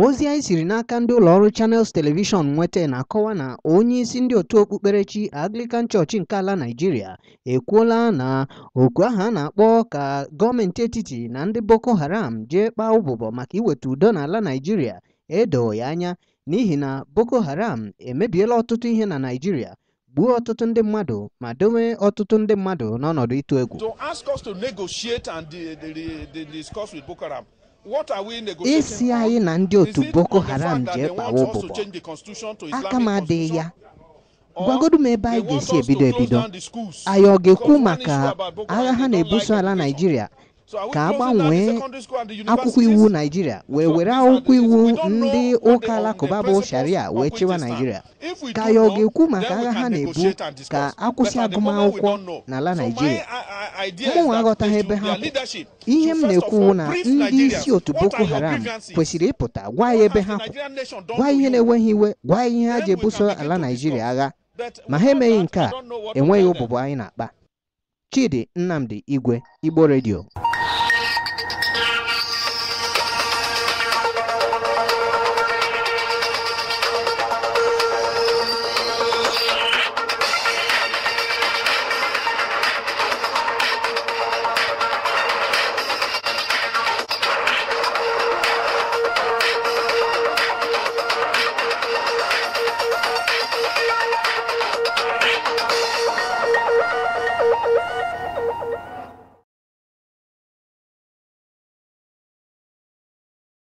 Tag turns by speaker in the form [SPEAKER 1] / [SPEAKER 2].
[SPEAKER 1] ozi anyị siri n'aka ndị ụlọọrụ Channels Television nweta na-akọwa na onyeisi ndị otu okpukperechi Anglican Church nke ala naijiria ekwuola na oku aha a na-akpọ ka gọọmenti etiti na ndị Boko Haram jee kpaa ụbụbọ maka iweta udo ala Naijiria edoo ya anya n'ihi na Boko Haram emebiela ọtụtụ ihe na naijiria gbuo ọtụtụ ndị mmadụ ma dowe ọtụtụ ndị mmadụ n'ọnọdụ ịtụ egwu. isi anyị na ndị otu boko haram jee kpawa ụbụbọ aka m adịghị ya gwagodo m ebe anyị ga-esi ebido ebido anyị ọ ga-ekwu maka agha ha na-ebuso ala naijiria ka a gbanwee akwụkwọ iwu naijiria wee were akwụkwọ iwu ndị ụka alakụba bụ sharia wee chịwa naijiria ka anyị ọ ga-ekwu maka agha ha na-ebu ka akwụsị agụmakwụkwọ n'ala naijiria mụnwa aghọtaghị ebe ha kwụ ihe m na ekwu na ndị isi otu Boko Haram kwesịrị ịpụta gwa ya ebe ha kwụ gwa ihe na-enweghị iwe gwa ihe ha ji ebuso ala Naịjirịa agha ma ha emeghị nke a enweghị ụbụbụ anyị na-akpa Chidi Nnamdi Igwe Igbo redio.